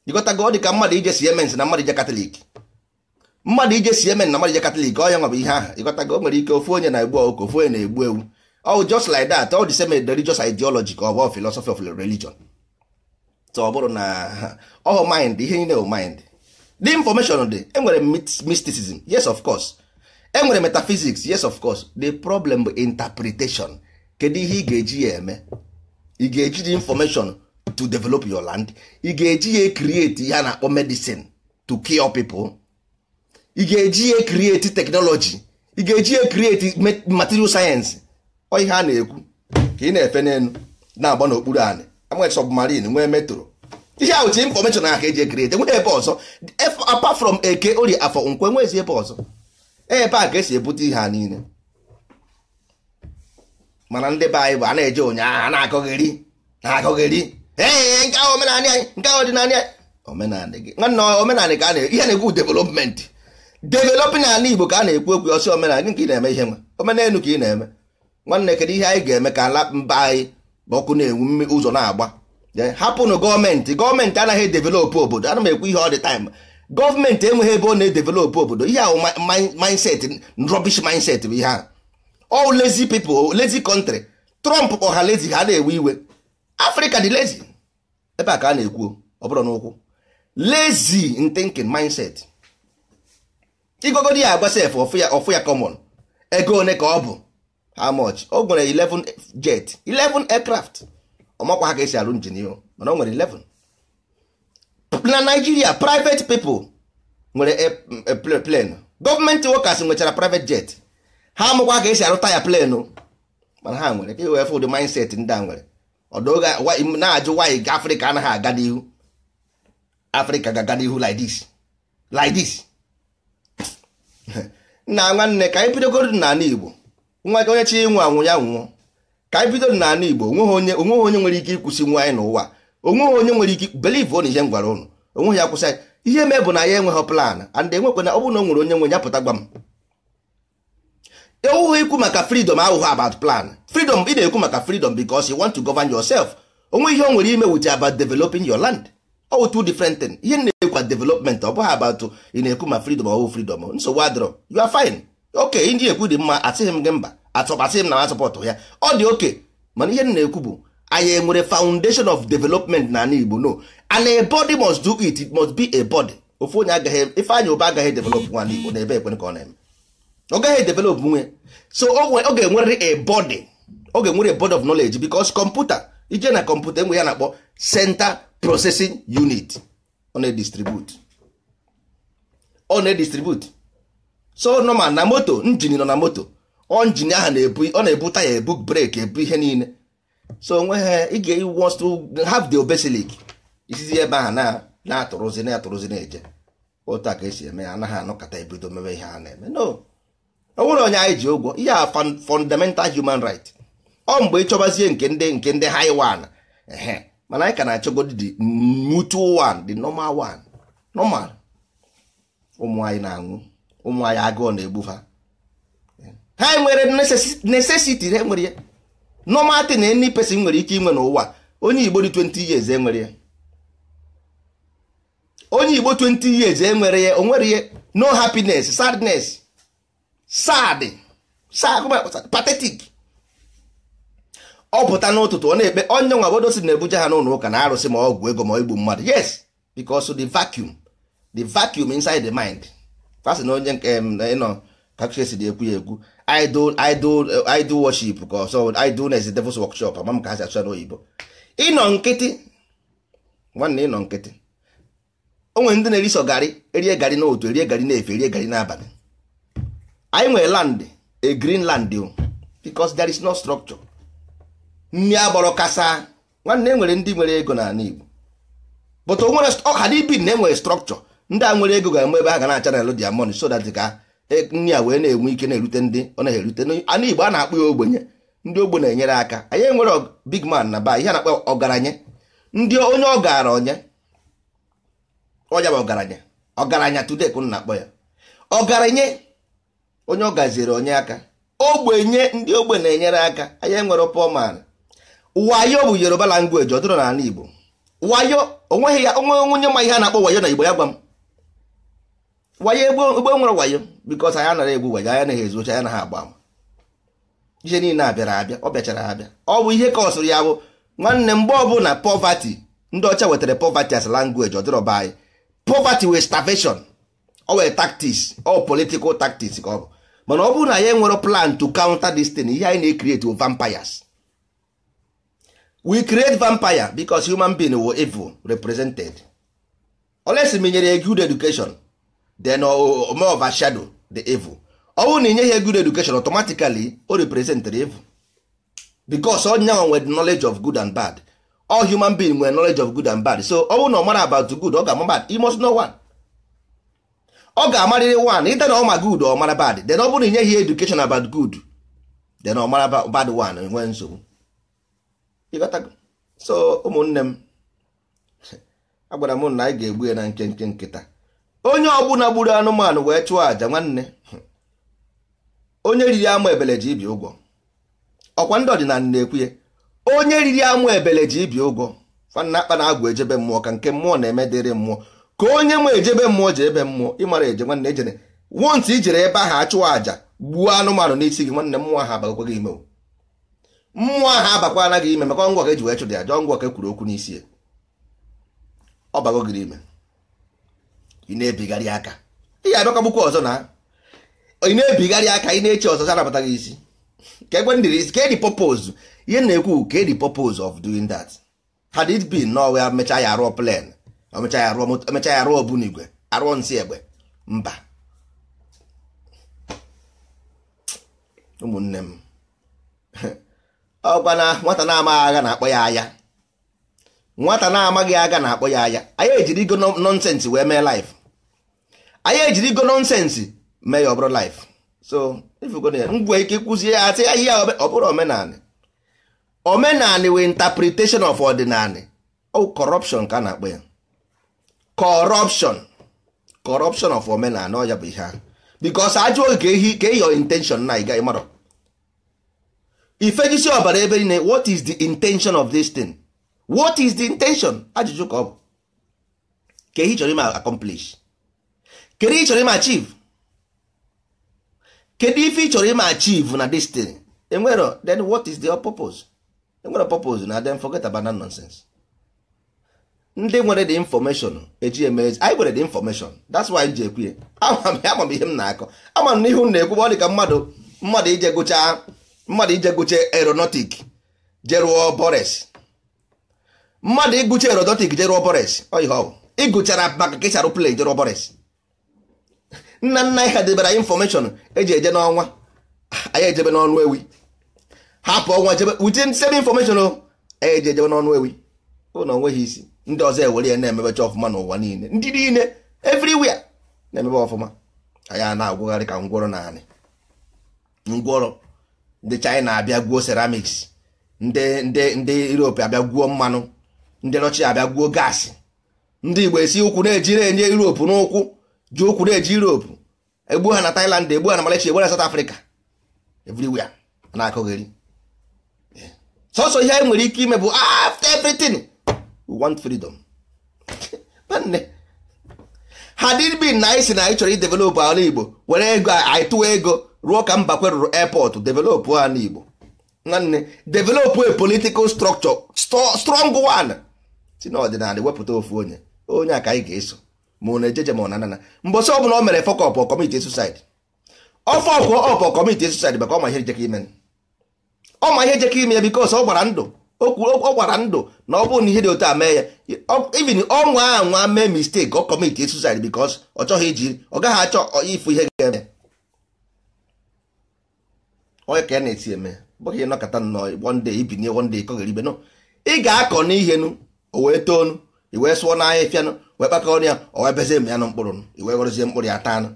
jikọtago dị ka mmadụ ije siemens na mmadụ ije katọlik mmadụ ije si emen na mmadụ ije katọlik ọ ya nwa bụ ihe ahụ ịgotago o nwere ike ofu onye na-egbu ọkụ ofu onye na-egbu ewu ọ just like that all the same religious ideology ka ọ bụ philosophy of religion ọ bụrụ na [laughs] ọ mind ihe niile bụ mind the information dị enwere mysticism yes of course enwere metaphysics yes of course the problem bụ interpretation kedu ihe ị ga-eji ya eme ị ga-eji the information to develop your land ị ga-eji ya create ihe a na-akpọ medicine to cure people ị ga-eji ya krieti teknọlọji ị ga-eji ya krieti material sayensị ọ ihe a na-ekwu ka ị na-efe n'elu na-agba n'okpuru anị nwee submarine nwee metro ihe ahụ chi infọmeshọn ahụ ka eji ekrieti nwee ebe ọzọ apart from eke ori afọ nkwe nwezi ebe ọzọ e, ebe a ka esi ebute ihe a niile mana ndị be anyị bụ a na-eje ụnyaahụ a na-akọgheri na-akọgheri ee nke ahụ omenanị anyị nke ahụ ọdịnala anyị omenala gị nwanne omenala ka a na-ekwu ihe na-ekwu development developing ala igbo ka a na-ekwu okwu ọsị omenala gị ka ị na-eme ihe nwa omenelu ka ị na-eme nwanne kedu ihe anyị ga-eme ka ala mba anyị ọkụ na-enwu ụzọ na-agba hapụnụ gọọmenti gọọmenti anaghị edevelopụ obodo ana m ekwu ihe ọ dị taịm gọọmenti enweghị ebe ọ na-edevelopụ obodo ihe ahụ mindset rubbish mindset bụ ihe a ol lezi people lezi country trọmp ọha lezi ha na-ewe iwe afrịka dị lezi ebe a ka a na-ekwu ọ bụrụ n'ụkwụ lezi thinking mindset igogodi ya agba sef ọfụ ya ya ego one ka ọ bụ how much o nwere 11 jet 11 aircraft ọmakwa ha ka esi arụ njin ihe mana o nwere 11 na Nigeria private people nwere plenu gọọmenti workers nwechara private jet ha amụkwa ka esi arụ taya plenu mana ha nwere ka iwefụ e ụdị mindset ndị a nwere ọdụ na-ajụ wanyị Afrịka anaghị aga n'ihu Afrịka ga-aga n'ihu like this like na nwanne ka anyị bidogoro n'ala Igbo nwa onye chi nwe anwụ ya nwụọ ka anyị bidoro n'ala Igbo onweghị onye nwere ike ịkwụsị nwa anyị n'ụwa onweghị onye nwere ike believe na ihe m gwara ụnụ onweghị ya kwụsị ihe mee bụ na ya enweghị plan and na ọ bụrụ na o nwere onye nwe ya pụta gwa m ewughị ikwu maka freedom ahụhụ about plan fridom ị na-ekwu maka freedom because you want to govern yourself onwe ihe o nwere ime with about developing your land ọwụ two different thing ihe na-ekwa development ọ bụghị abatụ ị na-ekwu ma freedom ọwụ freedom nsogbu adịrọ you are fine oke ndị ekwu dị mma atịghị m gị mba asịghị m na asọpọtụ ya ọ dị oke mana ihe na-ekwu bụ anyị enwere foundation of development na ala Igbo no and a body must do it it must be a body ofu onye agaghị ife anya ụba agaghị develop nwa Igbo na ebe ekwe ka ọ na-eme ọ gaghị develop nwe so ọ ga-enwerịrị a body ọ ga-enwere a body of knowledge because kọmputa ije na kọmputa enwe ya na-akpọ senta processing unit ọ na-edistribute ọ na-edistribute so normal na moto njin nọ na moto ọ njin ahụ na-ebu ọ na-ebu taya ebu breki ebu ihe niile so onwe ha ị ga-wants to have the obesilic isizi ebe ahụ na-atụrụzi na-atụrụzi na-eje otu a ka esi eme ya anaghị anọkọta ebido mewe ihe a na-eme no o nwere onye anyị ji ụgwọ ihe a fundamental human right ọ mgbe ịchọgbazie nke ndị nke ndị haiwan ehe mana anyị ka na-achọgodi the mutual one the normal one normal ụmụ anyị na-anwụ ụmụ anyị na-egbu ha ha nwere necessity ha nwere ya normal na any pesin nwere ike inwe n'ụwa onye igbo dị 20 years enwere ya onye igbo 20 years enwere ya ya no happiness sadness sad sad patetik ọ pụta n'ụtụtụ ọ na-ekpe onye nwa obodo si na-ebuje ha n'ụlọ ụka na arụsị ma ọgwụ ego ma igbu mmadụ yes because the vacuum the vacuum inside the mind kwasị na onye nke ịnọ kakchesi dị ekwu ya ekwu idol idol idol worship ka ọsọ idol is devil's workshop ama m ka ha si achọ n'oyibo ịnọ nkịtị nwanne ịnọ nkịtị o nwere ndị na-eriso gari erie gari n'otu erie garị na-efe erie gari n'abalị anyị nwere land a green land o because there is no structure nri agbọrọ kasa nwanne e nwere ndị nwere ego n'ala Igbo but onwere ọha dị ibi na enwere strọkchọ ndị a nwere ego ga-eme ebe ha ga na-achanel dia money so that ka e, nri a wee na-enwe ike na-erute ndị ọ na-erute n'ala Igbo a na-akpụ ya ogbenye ndị ogbe na-enyere aka anyị nwere big man na ba ihe a na-akpọ ọgaranya ndị onye ọgaranya ọnya bụ ọgaranya ọgaranya today ka na-akpọ ya ọgaranya onye ọ gaziere onye aka ogbenye ndị ogbe na-enyere aka anyị nwere pọman wayo bụ yoruba language ọ dịrọ n'ala igbo wayo onweghị ya onwe onye ma ihe a na-akpọ wayo na igbo ya gwa m wayo egbe nwere wayo bikos anyị anaghị egbu wayo anyị anaghị ezuocha anyị anaghị agba ama ihe niile abịara abịa ọ bịachara abịa ọ bụ ihe ka kọsụrụ ya bụ nwanne mgbe na poverty ndị ọcha wetara poverty as language ọ dịrọ anyị poverty wee starvation ọ wee tactics ọ political tactics ka ọ bụ mana ọ bụrụ na ya enwere plan to counter this thing ihe anyị na-ekreti vampires we create vampire because human being were evil represented always m nyere good education then uh, more shadow the evil ọ bụrụ na ị nyeghị good education automatically o represent the evil because onye young nwere knowledge of good and bad all human being nwere knowledge of good and bad so ọ bụrụ na ọ mara about good ọ ga-ama bad must know one ọ ga-amarịrị one ịta na ọ ma good ọ mara bad then ọ bụrụ na ị nyeghị education about good then ọ mara bad one nwee nsogbu so ụmụnne m agwara m na anyị ga-egbu ya na nkenke nkịta onye ọbụla gburu anụmanụ wee chụọ aja, nwanne onye riri amụ ebele ji ibi ụgwọ ọkwa ndị ọdịnala na-ekwu ya onye riri amụ ebele ji ibi ụgwọ fanna akpa na agwụ ejebe mmụọ ka nke mmụọ na-eme dịrị mmụọ ka onye mụ ejebe mmụọ ji ebe mmụọ ịmara eje nwanne ejene wonti ijere ebe ahụ achụọ aja gbuo anụmanụ n'isi gị nwanne mmụọ ha abagakwa gị imewo mmụọ ahụ abakwa anaghị ime maka ọngwọ ka eji wee chụda ya jọọ ngwọ ka ekwuru okwu n'isi ya ọ bago gịrị ime ị na-ebigharị aka ị ga-abịakwagbukwa ọzọ na ị na-ebigharị aka ị na-eche ọzọ anabata gị isi ka egbe ndịrị isi ka edi purpose ihe na-ekwu ka edi purpose of doing that had it been na ọwa mecha ya arụọ plan omecha ya arụọ ọbụnigwe arụọ nsị egbe mba ụmụnne m [laughs] ọkwana nwata na-amaghị agha na-akpọ ya aya nwata na-amaghị aga na-akpọ ya aya anyị ejiri ego nọnsensị wee mee laif anyị ejiri ego nọnsensị mee ya ọbụrụ laif so ngwe ike kwụzie ya asị ya ọ bụrụ omenanị omenanị wee interpretation of ọdịnanị ọ corruption ka a na-akpọ ya corruption corruption of omenanị ọ ya bụ ihe ahụ because ajụ oge ka ehi ka eyi intention na ị gaghị ifejisi ọbara ebe niile what is the intention of this thing what is the intention ajụjụ ka ọ bụ ke ị chọrọ ime accomplish kedu ị chọrọ ime achieve kedu ife ị chọrọ achieve na this thing enwero then what is the purpose enwere purpose na then forget about that nonsense ndị nwere the information eji eme anyị nwere the information that's why m ji ekwu ya ama m ihe m na-akọ ama m n'ihu na-ekwu ọ dị ka mmadụ mmadụ ije gụchaa mmadụ ije gụcha aeronautic jerụọ bores mmadụ ịgụcha aeronautic jerụọ bores ịgụchara maka kesharụ plen jerụọ bores nna nna anyị ha debara anyị infọmeshọn eji eje n'ọnwa anyị ejebe n'ọnụ ewi hapụ ọnwa jebe wute sebe infọmeshọn anyị eji ejebe n'ọnụ ewi ụlọ onweghị isi ndị ọzọ ewere ya na-emebecha ọfụma n'ụwa niile ndị niile everywhere na-emebe ọfụma anyị a na-agwụgharị ka ngwọrọ naanị ngwọrọ ndị China abịa gwuo seramiks ndị ndị ndị Europe abịa gwuo mmanụ ndị Russia abịa gwuo gaasị ndị Igbo esi ụkwụ na-eji na-enye Europe n'ụkwụ ji ụkwụ na-eji Europe egbu ha na Thailand egbu ha na malachi egbu ha na South Africa everywhere na-akọgheri sọsọ ihe anyị nwere ike ime bụ after everything we want freedom ha dịrị na anyị si na anyị chọrọ idevelopụ ala Igbo were ego anyị tụwa ego ruo ka Mbakwe rụrụ airport develop ala Igbo nwanne develop a political structure strong one si n'ọdịnala wepụta ofu onye onye a ka anyị ga-eso ma ọ na-ejeje ma ọ na-anana mbọsị ọ bụla o mere fọkọp kọmiti susaid ọfọ ọkụ ọpọ kọmiti susaid maka ọma ihe jeka ime ọ ma ihe jeka ime ya bikos ọ gbara ndụ ọ gbara ndụ na ọ bụrụ na ihe dị otu a mee ya ivin ọ nwa a nwa mee mistake ọ kọmiti susaid bikos ọ chọghị iji ọ gaghị achọ ifu ihe ga-eme onye ka ya na-esi eme bụghị ya nnọọ one day ibinye one day ibe nọ ị ga-akọ n'ihe nụ o wee toonu i wee sụọ n'ahịa ịfịanụ wee kpakọrọ ya o wee bezie m ya nụ mkpụrụ nụ i wee ghọrọzie mkpụrụ ya taa nụ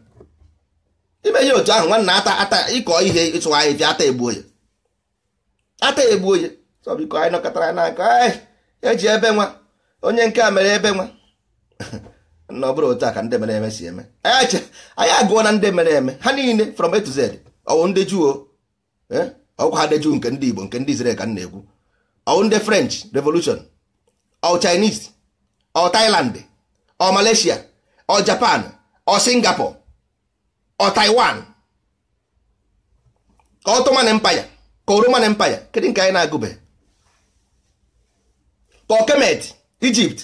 ime ihe otu ahụ nwanna ata ata ịkọ ihe ịsụ ahịa ịfịa ata egbuo ya ata egbuo ya sọ biko anyị nọkọtara n'aka eji e ebe nwa onye nke a mere ebe nwa [laughs] na ọ bụrụ otu a ka ndị mere eme si eme anyị agụọ na ndị mere eme ha niile from A to Z ọwụ ndị juo ọkwa eh? adeju nke ndị Igbo nke ndị Israel ka m na-ekwu ọ ndị French Revolution ọ Chinese ọ Taịlandị: ọ Malaysia ọ Japan ọ Singapore ọ Taiwan ka Ottoman mpaya ka Roman mpaya, kedu nke anyị na-agụbe ka kemetị: Egypt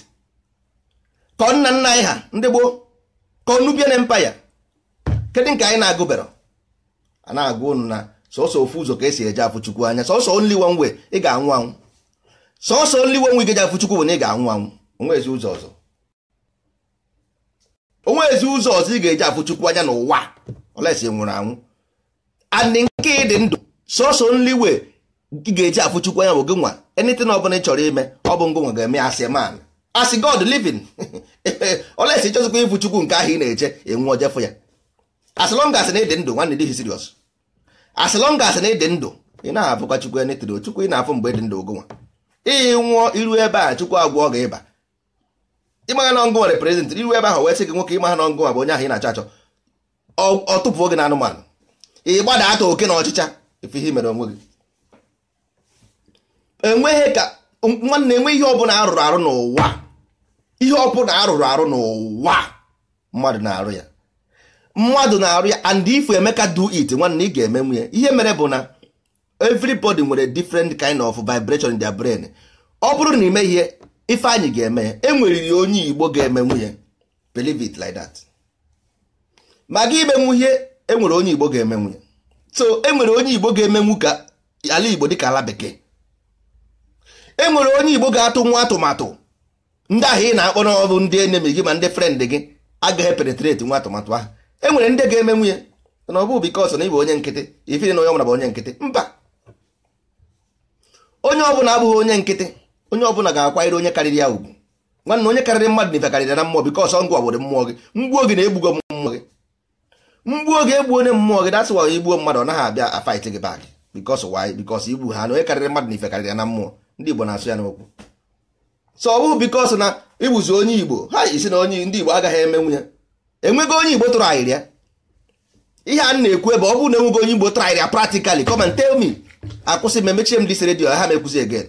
ka nna nna anyị ha ndị gboo ka Nubian Empire kedu nke anyị na-agụbero a na-agụ unu na sọsọ ofu ụzọ ka esi eje afụ chukwu anya sọsọ only one way ị ga-anwụ anwụ sọsọ only one way ga-eji afụ chukwu bụ na ị ga-anwụ anwụ onwezi ụzọ ọzọ onwezi ụzọ ọzọ ị ga-eji afụ chukwu anya n'ụwa olesi e nwụrụ anwụ and nke ịdị ndụ sọsọ only way ị ga-eji afụ chukwu anya bụ gị nwa anything ọ bụla ị chọrọ ime ọ bụ ngụnwa ga-eme asị man asị god living olesi [laughs] chọzikwa ịfụ nke ahụ ị na-eche enwe ojefụ ya as long as na ịdị ndụ nwanne dị serious as long as na ịdị ndụ ị na-abụkwa chukwu ya netiri chukwu ị na-afụ mgbe dị ndụ ogonwa ị nwụọ iru ebe a chukwu agwọ gị ịba ịmagha na ọngụnwa represent iru ebe ahụ wee sị gị nwoke ịmagha na ọngụnwa bụ onye ahụ ị na-achọ achọ ọ tụpụ oge na anụmanụ ị gbada ata oke na ọchịcha efe ihe mere onwe gị enweghị ka nwanne enwe ihe ọbụla arụrụ arụ n'ụwa ihe ọbụla arụrụ arụ n'ụwa mmadụ na-arụ ya mmadụ na-arụ ya and if Emeka do it nwanne ị ga-eme nwunye ihe mere bụ na everybody nwere different kind of vibration in their brain ọ bụrụ na ime ihe ife anyị ga-eme enwere enweriri onye Igbo ga-eme nwunye believe it like that ma gị imenwu ihe enwere onye Igbo ga-eme nwunye so enwere onye Igbo ga-emenwu ka ala Igbo dịka ala bekee enwere onye Igbo ga-atụ nwa atụmatụ ndị ahụ ị na-akpọ n'ọbụ ndị enemi gị ma ndị frend gị agaghị penetrate nwa atụmatụ ahụ enwere ndị ga-eme nwunye na ọ bụ bikos na ịbụ onye nkịtị ifiri na onye ọbụla bụ onye nkịtị mba onye ọbụla abụghị onye nkịtị onye ọbụla ga-akwanyere onye karịrị ya ugwu nwanne onye karịrị mmadụ na ife karịrị na mmụọ bikos ngwa mmụọ gị mgbuo gị na-egbugo mmụọ gị mgbuo gị onye mmụọ gị dasị wa igbuo mmadụ ọ naghị abịa afaịtị gị bak bikos waanyị bikos igbu ha na onye karịrị mmadụ na ife na mmụọ ndị igbo na-asụ na onye igbo ha isi onye ndị igbo agaghị eme nwunye enweghị onye igbo tụrụ ahịrịa ihe a na-ekwu ebe ọ bụrụ na enweghị onye igbo tụrụ ahịrịa practically come tell me akwụsị m emechie m disi redio ha mekwuzi egen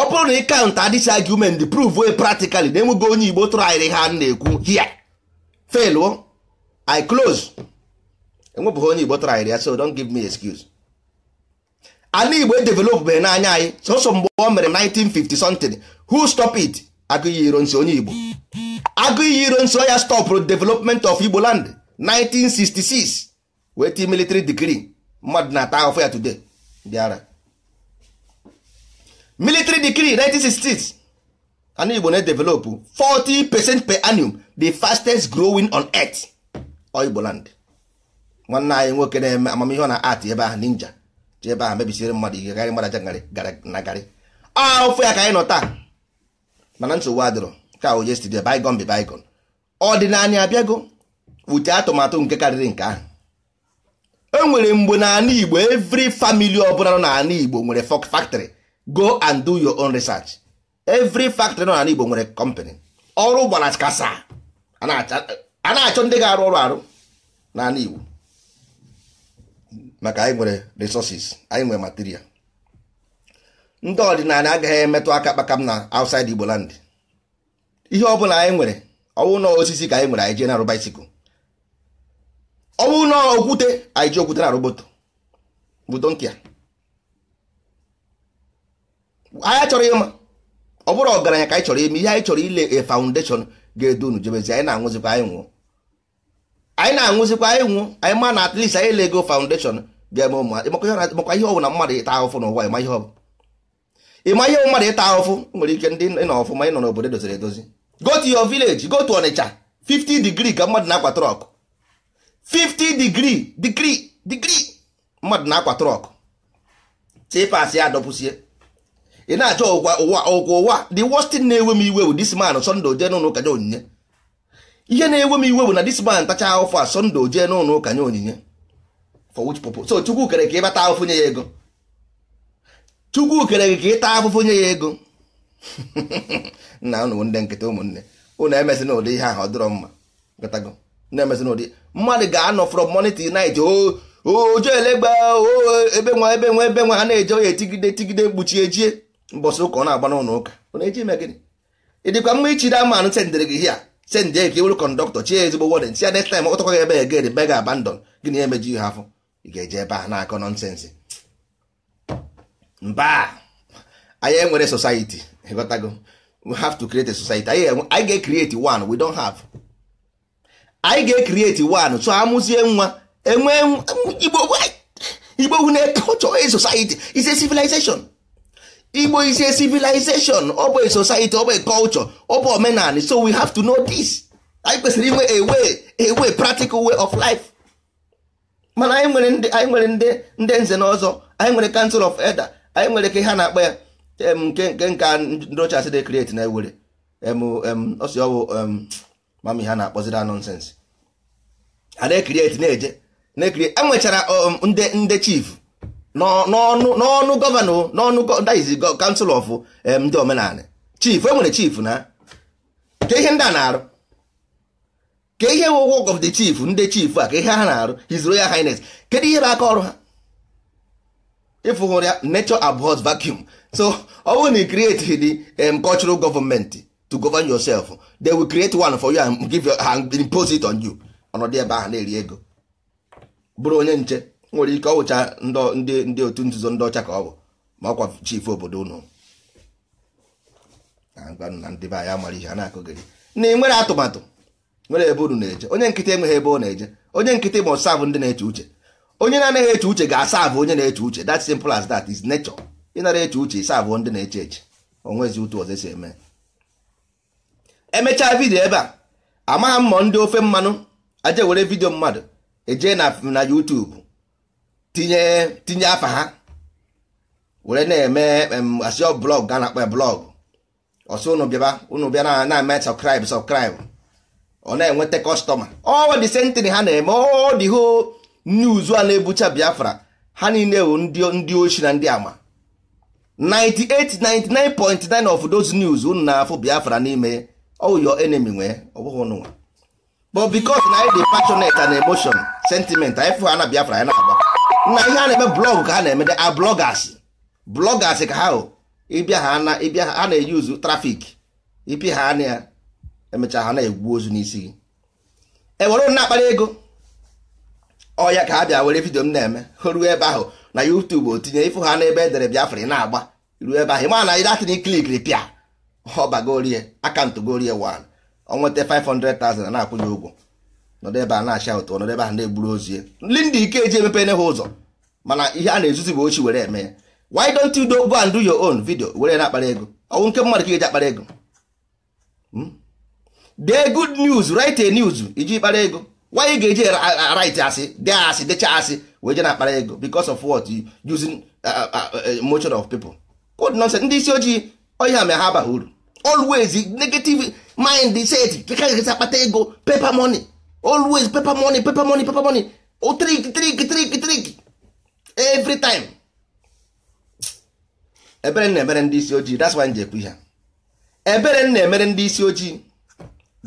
ọ bụrụ na ị kaụnta dis argument prove practically na enweghị onye igbo tụrụ ahịrịa ha na-ekwu here fail i close enwebụghị onye igbo tụrụ ahịrịa so don't give m excuse ana igbo edevelopbeghị n'anya anyị sọsọ mgbe ọ mere 1950 something hu stop it agụ iyi iro nso onye igbo agụ iyi iro nso ya stọpụrụ development of igbo land 1966 wee tii military degree mmadụ na-ata ahụfụ ya today bịara military degree 1966 anụ igbo na-edevelopụ 40 percent per annum the fastest growing on earth igbo land nwanne anyị nwoke na-eme amamihe ọ na art ebe ahụ ninja ji ebe ahụ mebisiri mmadụ ihe garị mmadụ aja na garị ahụfụ ya ka anyị nọ taa mana nsogbu adịrọ ka o yesterday bygone be bygone ọdịnala abịago wute atụmatụ nke karịrị nke ahụ enwere mgbe n'ala Igbo every family ọbụla nọ n'ala Igbo nwere fok factory go and do your own research every factory nọ n'ala Igbo nwere company ọrụ gbara kasa a na-achọ ndị ga-arụ ọrụ arụ n'ala Igbo maka anyị nwere anyị nwere material ndị ọdịnala agaghị emetụ aka kpakam na outside Igbo land ihe bụla anyị nwere ọwụ na osisi ka anyị nwere anyị jee na-arụ baisikụl ọwụ na okwute anyị ji okwute na-arụ moto bụ donkịa anyị chọrọ ịma ọ bụrụ ọgaranya ka anyị chọrọ ime ihe anyị chọrọ ile a foundation ga-edu unu jebezi anyị na-anwụzikwa anyị nwụọ anyị na-anwụzikwa anyị nwụọ anyị ma na at anyị ele ego foundation ga-eme ụmụ makwa ihe ọ bụla mmadụ ịta ahụfụ n'ụwa ma ihe ọ ị ma ihe mmadụ ịta ahụfụ nwere ike ndị nọ ọfụma ịnọ n'obodo doziri edozi go to your village go to Onitsha 50 degree ka mmadụ na-akwa trọk 50 degree degree degree mmadụ na-akwa trọk tipasị ya adọpụsie ị na-achọ ụwa ụwa ụwa the worst thing na-ewe m iwe bụ this man Sunday oje n'ụlọ ụka onyinye ihe na-ewe m iwe bụ na this man tacha ahụfụ a Sunday oje n'ụlọ ụka onyinye for which purpose so Chukwu kere ka ịbata ahụfụ nye ya ego chukwu kere gị ka ịta afụfụ nye ya ego nna unu ndị nkịta ụmụnne ụnụ emesị n'ụdị ihe ahụ ọ dịrọ mma gatago na-emesị n'ụdị mmadụ ga-anọ from morning till night ojo elegba ebe nwa ebe nwa ebe nwa ha na-eje oya etigide etigide mkpuchi ejie mbọsị ụka ọ na-agba n'ụlọ ụka ọ eji eme gịnị ịdịkwa mma ichi da mmanụ sendịrị gị hia sendị ya ka iwere kọndọktọ chi ezigbo wọden si ya next time ọ tọkwa gị ebe ya gịnị gịnị emeji ihe afọ ị ga-eje ebe a na-akọ nọnsensị mba anyị enwere society ịghọtago we have to create a society anyị ga-ecreate one we don't have anyị ga-ecreate one so amụzie nwa enwe igbo wu na-ekochọ a society is a civilization igbo is a civilization ọ bụ a society ọ bụ a culture ọ bụ omenala so we have to know this anyị kwesịrị inwe a way a way practical way of life mana anyị nwere ndị anyị nwere ndị ndị nze na anyị nwere council of elder anyị nwere ike ha na-akpọ ya nke nke nka ndị ochie asị dị create na ewere ọsị ọwụ mami ha na-akpọziri nonsens a na-ekrieti na-eje na-ekiri enwechara ndị ndị chief n'ọnụ gọvanọ n'ọnụ daiz kansụl of ndị omenala chief enwere chief na ka ihe ndị a na-arụ ke ihe wụ work of the chief ndị chief a ka ihe ha na-arụ his royal highness kedu ihe bụ aka ọrụ ha ịfụhụrụ ya nature abhors vacuum so ọ bụrụ na ị create the um, cultural government to govern yourself they will create one for you and give you and impose it on you ọnọdụ ebe ahụ na-eri ego bụrụ onye nche nwere ike ọwụcha wụcha ndị ndị otu nzuzo ndị ọcha ka ọ bụ ma ọkwa chief obodo unu na ndị be anyị mara ihe a na-akụgịrị na ị nwere atụmatụ nwere ebe unu na-eje onye nkịtị enweghị ebe ọ na-eje onye nkịtị ma ọsabụ ndị na-eche uche onye na-anaghị eche uche ga-asa abụ onye na-eche uche that simple as that is nature ịnara eche uche ịsa abụ ndị na-eche eche onwezi ụtụ ọzọ si eme emechaa vidio ebe a amagha m ma ndị ofe mmanụ aje were vidio mmadụ eje na na YouTube tinye tinye afa ha were na-eme asịọ blọg ga na-akpọ blọgụ ọsọ ụnụ bịaba unu bịa na-eme subscribe subscribe ọ na-enweta kọstọma ọ dị sentịn ha na-eme ọ dị hoo nye uzu a na-ebucha biafra ha niile bụ ndị ochi na ndị ama 98.99 of those news unu na-afụ biafra n'ime oyo your enemy nwee ọ bụghị ụnụnwa but because na anyị dị passionate emotion sentiment anyị fụ ha na biafra anyị na-agba na ihe a na-eme blọgụ ka ha na-eme a blọgas blọgas ka ha ịbịa ha na ịbịa ha na-eyuzu trafik ipi ha na ya emechaa ha na-egwu ozu n'isi gị ewere na-akpara ego ọ ya ka a bịa were vidio m na-eme ruo ebe ahụ na o tinye ifu ha n'ebe edere Biafra ị na-agba ruo ebe ahụ ma na ịdatịn klikiri pịa ọbagorie akantụ gorie wan ọ nweta 500,000 na-akwụ ya ụgwọ nọdụ ebe a na-acha ụtụ nọdụ ebe ahụ na-egburu ozi ndị ndị ike eji emepere ha ụzọ mana ihe a na-ezuzi bụ ochi were eme ya why don't you go and do your own video were na-akpara ego ọnwụ nke mmadụ ka eji akpara ego hmm? dee good news write news iji kpara ego why you ga-eji uh, uh, right asị dee asị decha asị wee je na akpara ego because of what using uh, motion of people code nonsense ndị isi ojii ọhịa ma ha abaghị uru always negative mind set ka ga-esi akpata ego paper money always paper money paper money paper money o oh, trick trick trick trick every time ebere na-emere ndị isi ojii that's why njekwu ha ebere na-emere ndị isi ojii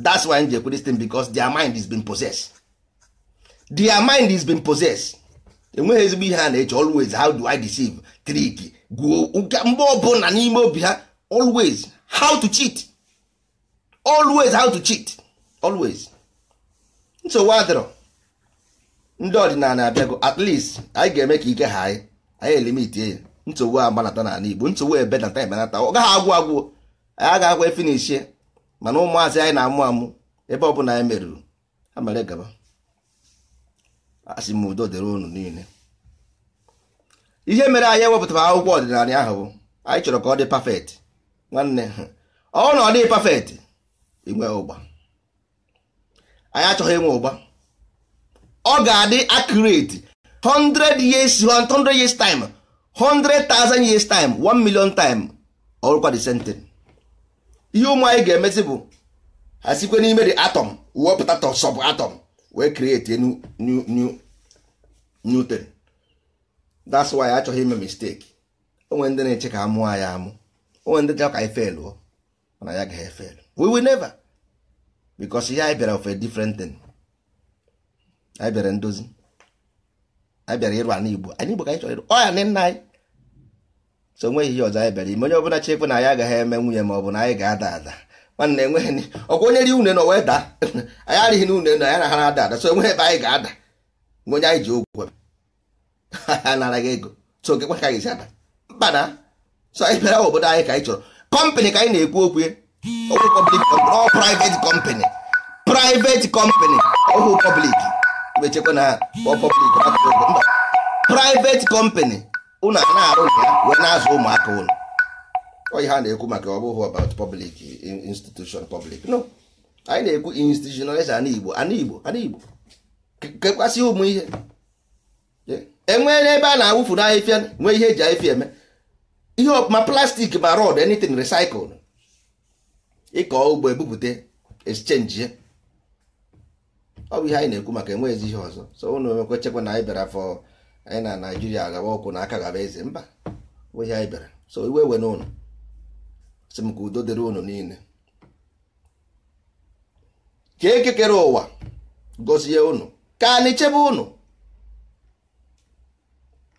that's why njekwu this thing because their mind is being possessed their mind is being possessed enweghị ezigbo ihe a na-eche always how do I deceive trick gwuo mgbe ọbụla n'ime obi ha always how to cheat always how to cheat always nsogbu adịrọ ndị ọdịnala abịago at least anyị ga-eme ka ike ha anyị anyị elimiti ya nsogbu agbanata n'ala Igbo nsogbu ebenata ebenata ọ gaghị agwụ agwụ anyị agaghị akwa efinishie mana ụmụazị anyị na-amụ amụ ebe ọ bụla anyị merụrụ ha mere gaba asị m udo dịrị unu niile ihe mere anyị ewepụtara akwụkwọ ọdịnala ahụ bụ anyị chọrọ ka ọ dị pafet nwanne ọ na ọ dịghị pafet inwe ụgba anyị achọghị inwe ụgba ọ ga-adị accurate 100 years 100 years time 100,000 years time 1 million time ọrụkwa the same thing ihe ụmụ anyị ga-emezi bụ ha n'ime the atom wepụta sub atom wee create a new new new thing that's why achọghị ime mistake onwe ndị na-eche ka amụọ ya amụ onwe ndị chọrọ ka anyị felụọ mana ya gaghị efelu we will never because ihe anyị bịara of a different thing anyị bịara ndozi anyị bịara ịrụ ana igbo anyị igbo ka anyị chọrọ ịrụ ọ ya nna anyị so onweghị ihe ọzọ anyị bịara ime onye ọbụla chefu na anyị agaghị eme nwunye ma ọ bụ na anyị ga-ada ada nwanne enweghị ọkwa onye ri une na wee daa [laughs] anyị arịghị na une na ya na ha na-ada ada so enweghị ebe anyị ga-ada mgbe onye anyị ji ogwe ha [laughs] nara gị ego so gị gwa ka anyị si ada mba na so anyị bịara obodo anyị ka anyị chọrọ kọmpanị ka anyị na-ekwu okwu ọwụ pọblik ọ privet kọmpanị privet kọmpanị ọwụ pọblik mechekwa na pọblik mba privet kọmpanị ụnụ a na-arụ ya wee na-azụ ụmụaka ụlọ ọ ihe a na-ekwu maka ọ bụghị about public institution public no anyị na-ekwu institutionalize ana Igbo ana Igbo ana Igbo kekwasị ụmụ ihe enwee e ebe a na-awụfu n'ahịfịa nwee ihe eji ahịfịa eme ihe ma plastik ma rod anything recycle ịkọ ugbo ebupụta exchange ọ bụ ihe anyị na-ekwu maka enweghịzi ihe ọzọ so ụnụ nwekwa chekwa na anyị bịara fọ anyị na Naijiria gawa ọkụ na aka gaba eze mba ihe anyị bịara so iwe we n'ụlọ si m ka udo dịrị unu niile ka eke kere ụwa gozie unu ka anyị chebe unu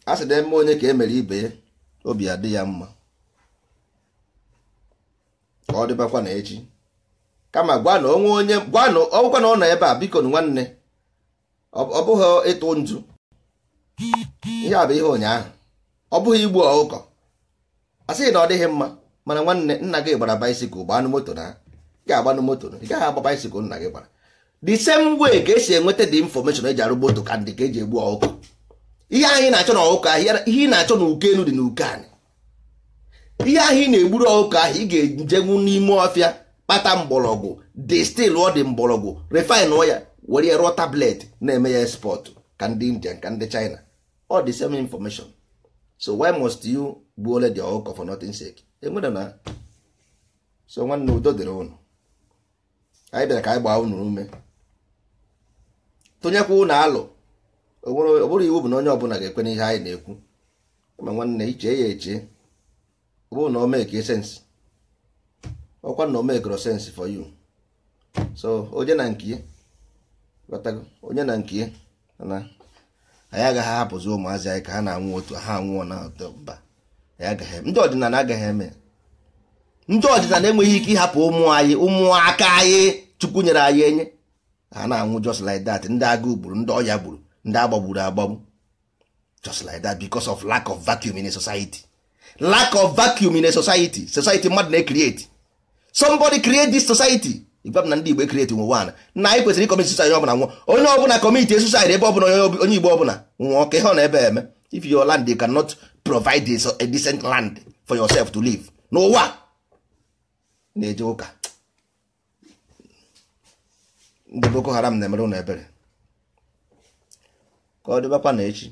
a sị na eme onye ka emere ibe ya obi adị ya mma ka ọ dịbakwa na echi kama gwa na onwe onye gwa na ọgwụkwa na ọ nọ ebe a biko nwanne ọ bụghị ịtụ nju ihe a bụ ihe ụnyaahụ ọ bụghị igbu ọkụkọ a sịghị na ọ dịghị mma mana nwanne nna gị gbara baisikụl gbaa moto na ị ga-agbanụ moto ị gaghị agba baisikụl nna gị gbara the same way ka esi enweta the information eji arụ moto ka ndị ka eji egbu ọkụkọ ihe anyị na-achọ na ọkụkọ ahịa ihe ị na-achọ na uke elu dị na uke anyị ihe ahụ ị na-egburu ọkụkọ ahụ ị ga-ejenwu n'ime ọfịa kpata mgbọrọgwụ stil ọ dị mgbọrọgwụ refine ọ were ya rụọ tablet na-eme ya spọtụ ka ndị india ka ndị china ọ dị same information so why must you gbuola the ọkụkọ for nothing sake enwere na so nwanne udo dịrị ụnụ anyị bịara ka anyị gbaa unu ume tụnyekwa ụnụ alụ ọ bụrụ iwu bụ na onye ọbụla ga-ekwe n'ihe anyị na-ekwu ma nwanne iche ya eche ọ bụrụ na o mee ka e sensị ọkwa na o mee sensị for you so onye na nke onye na nke na anyị agaghị ahapụzi ụmụazị anyị ka ha na-anwụ otu ha anwụọ na mba ndị ọdịnala agaghị eme ndị ọdịnala enweghị ike ịhapụ ụmụ anyị ụmụaka anyị chukwu nyere anyị enye ha na-anwụ just like that ndị agụụ gburu ndị ọya gburu ndị agbagburu agbagbu just like that because of lack of vacuum in a society lack of vacuum in a society society mmadụ na ekrieti somebody create this society igwa m na ndị Igbo create nwe one na anyị kwesịrị ịkọmiti suicide ọbụla nwụọ onye ọbụla kọmiti suicide ebe ọbụla onye Igbo ọbụla nwụọ ka ihe ọ na-ebe eme if your land you cannot provide a decent land for yourself to live n'ụwa na-eje ụka ndị Boko Haram na-emere ụlọ ebere ka ọ dịbakwa na echi